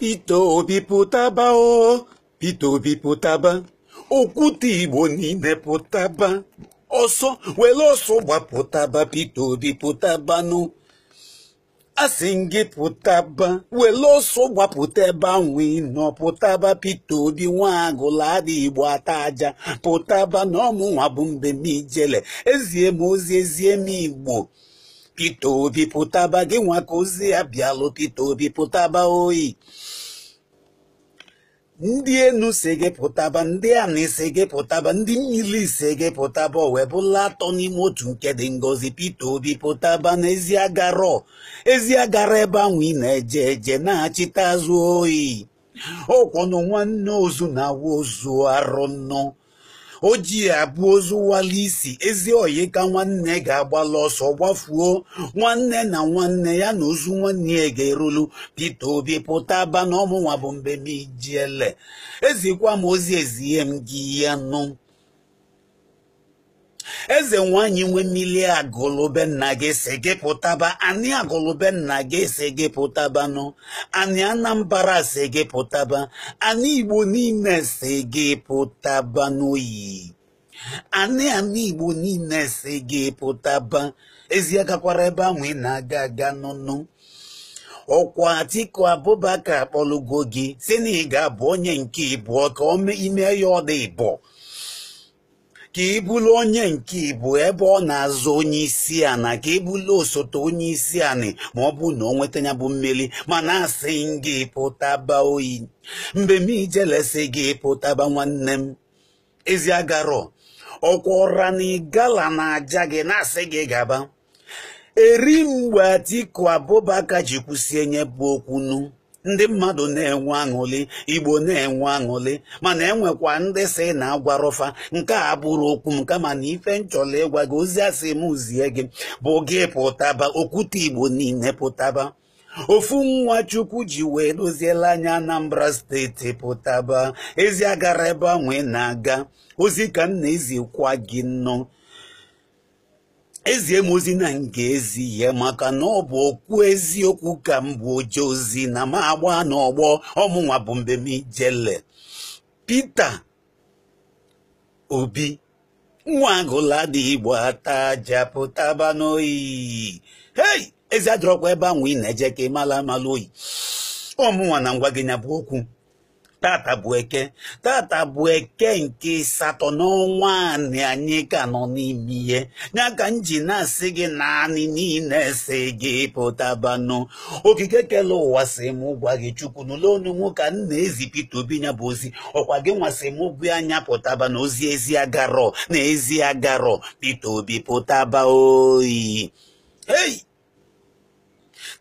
Pito biputaba o, pito biputaba, okuti woni ne putaba. Oso, welo so wa putaba, pito biputaba no. Asingi putaba, welo so wa putaba wino, putaba pito bi wango ladi wataja, putaba no mu wabumbe mijele, ezie mozi ezie mi igbo. Peter Obi pụtaba gị nwa ka ozi ya bịalụ Obi pụtaba oyi ndị enu si gị pụtaba ndị anị isi gị pụtaba ndị mmiri isi gị pụtaba ọ wee bụla atọ n'ime otu nke dị ngozi Peter Obi pụtaba n'ezi agara ezi agara ebe na-eje eje na-achịta azụ oyi ọkwọnụ nwanne ozu na awa ozu arụ nnọọ ojii abụọ abụ ozu isi ezi oyi ka nwanne ga-agbala ọsọ gbafuo nwanne na nwanne ya na ozu nwanne ya ga-erulu Peter Obi pụta aba na ọmụnwa bụ mbe m ijiele ezikwa m ozi ihe m gị ya nụ eze nwanyị nwe mmiri agụlụbe nna gị si gị pụtaba anyị agụlụbe nna gị si gị pụtabanụ anyị anambra si gị pụtaba anyị igbo niile si gị pụtaba n'oyi anị anị igbo niile si gị pụtaba ezi agakwara ebe ahụ ị na-aga aga nụnụ ọkwa Atiku Abubakar akpọlugo gị si na ị ga-abụ onye nke ịbụọ ka ime ya ọ dị ịbụọ ka ị onye nke ibu ebe ọ na-azụ onye isi ana ka ị osote onye isi ana ma ọ bụ na ọ nweta ya bụ mmeri na asị gị baa oyi mgbe m ijelesi gị pụtaba nwanne m ezi agarọ ọkwa ọra na na aja gị na-asị gị gaba eri mgbe Atiku Abubakar ji kwụsị enye bụ okwunu ndị mmadụ na-enwe aṅụli igbo na-enwe aṅụli mana enwekwa ndị si na-agwarọfa nke a bụrụ okwu m kama na ife nchọla ịgwa gị ozi asị m zie gị bụ gị pụtaba okwute igbo niile pụtaba ofu nwa chukwu ji wee doziela anya anambra steeti pụtaba ezi agara ebe a nwee na-aga ozi ka m na-ezikwa gị nnọọ ezie m ozi na m ga-ezi ihe maka na ọ bụ okwu eziokwu ka m bụ oje ozi na m agba n'ọgbọ ọmụnwa bụ mbem ijele Pita Obi nwa agụla dị igbo ata aja n'oyi hei ezi adọrọkwa ebe ahụ i na-eje ka ị mala amala oyi ọmụnwa na ngwa gị nya bụ okwu tata bụ eke tata bụ eke nke ịsatọ n'ọnwa anị anyị ka nọ n'ime ihe ya ka m ji na-asị gị naanị niile si gị pụtabanụ okike kele ụwa si m gwa gị chukwu n'ụlọ mụ ka m na-ezi pete Obi ya bụ ozi ọkwa gị nwasị m bụ anya pụtaba na ozi ezi agarọ na ezi agarọ Peter Obi pụtaba oyi ei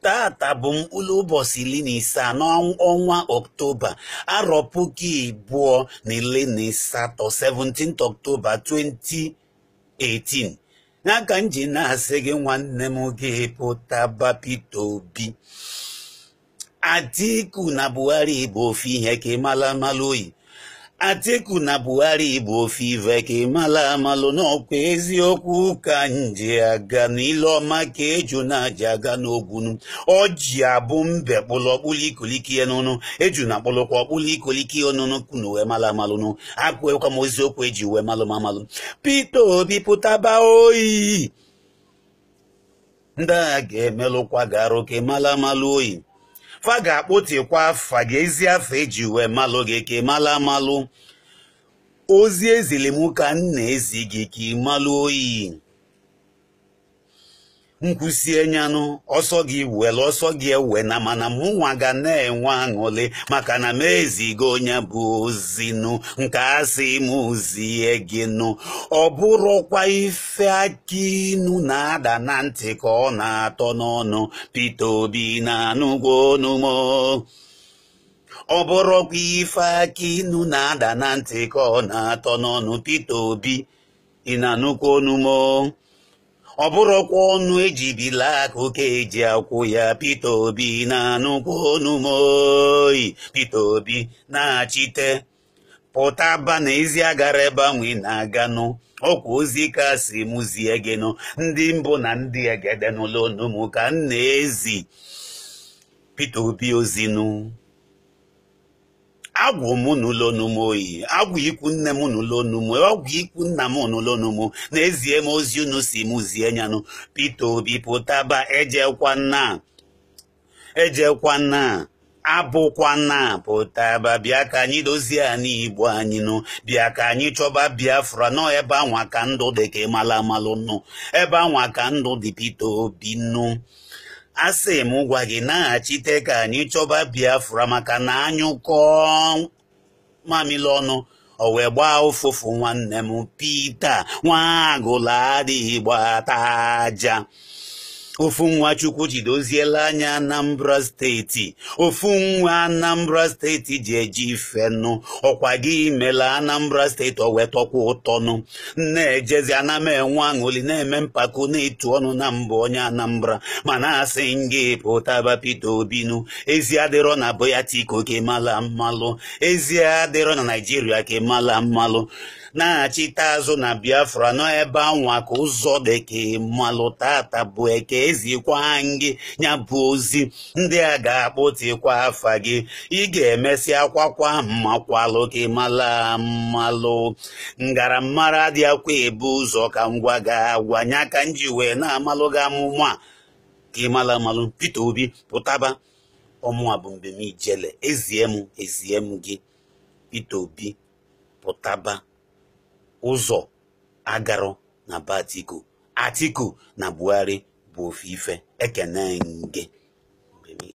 tata bụ mkpụrụ ụbọchị iri na ise n'ọnwa oktoba arọ puku ibu na iri na asatọ 17 oktoba 2018 n'aka m ji na-asị gị nwanne m ga-epụta Peter Obi Atiku na Buhari bụ ofu ihe ka ịmala mala oyi Atiku na Buhari bụ ofe ive ka ịmala amalụ n'ọkwa eziokwu ka nje aga n'ile ọma ka eju na-aja aga n'ogwunu ọji abụ mbe kpụlụ ọkpụlụ ikoliki n'ụnụ eju na akpụlụkwa ọkpụlụ ikoliki ọnụnụ kunu wee mala amalụnụ akwụekwa m eziokwu eji wee malụm amalụ Peter Obi pụtaba oyi ndị agha ga-emelụkwa garụ ka ịmala amalụ oyi fa ga-akpụtikwa afa gị ezi afa eji wee malụ gị ka mala amalụ ozi ezili ka nna na-ezi gị ka oyi nkwụsị enyanụ ọsọ gị welu ọsọ gị ewe na mana mụnwa ga na-enwe aṅụlị maka na m ezigo onye bụ ozinụ nke asị m zie gị nụ ọ bụrụkwa ife aka inu na-ada na ntị ka ọ na-atọ n'ọnụ Pita Obi na-anụgwo onumo ọ bụrụkwa ife aka inu na-ada na ntị ka ọ na-atọ n'ọnụ Pita Obi ị na-anụkwa onumo ọ bụrụkwa ọnụ ejibila aka eji akwụ ya Peter Obi na-anụkwa ọnụ m Obi na-achite pụta ba n'ezi agara ebe na-aganụ ọkwa ozi kasị m zie gịnụ ndị mbụ na ndị egedenụlọ ọnụ ka m ezi Peter Obi ozinụ agwụ m n'ụlọ onum oyi agwụ ikwu nne m n'ụlọ onum agwụ ikwu nna m n'ụlọ onum n'ezie m ozi unu si m zie nyanụ pete Obi pụtaba ejekwa nna ejekwa nna abụkwana pụtaba bịa ka anyị dozie anyị igbo anyị nụ bịa ka anyị chọba biafra nọ ebe anwa ka ndụ dị ka ịmala amalụ nụ ebe anwa ka ndụ dị pete Obi nụ asị m gwa gị naghachite ka anyị chọba Biafra maka na anyụkọ mamịlị ọnụ o wee gbaa ụfụfụ nwanne m Pita nwa agụla adịghị gbata aja ofu nwa Chukwuchi doziela anya Anambra steeti ofu nwa Anambra steeti ji eji nụ ọkwa gị imela Anambra steeti o ụtọnụ na-ejezi ana aṅụli na-eme mpako na-etu ọnụ na mbụ onye Anambra mana asị ngị pụtaba Peter Obinu ezi adịrọ na boyatiko tiko kemala mmalụ ezi adịrọ na Naijiria kemala mmalụ na-achịta azụ na biafra n'ebe anwa ka ụzọ deke malụ tata bụ eke ezikwa gị ya bụ ozi ndị a ga-akpụtikwa afa gị ị ga-emesi akwakwa mmakwalụ ka ịmala mmalụ ngaramara akwa ebe ụzọ ka ngwa ga-agwa nya ka m wee na-amalụ gị amụma ka ịmala mmalụ Peter Obi pụtaba ọmụa bụ mbem ijele ezie m ezie m gị Peter Obi pụtaba ụzọ agarọ na batiku Atiku na Buhari bụ ofe ife ekene nge.